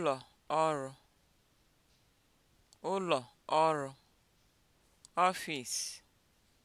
ụlọ ọrụ ụlọ ọrụ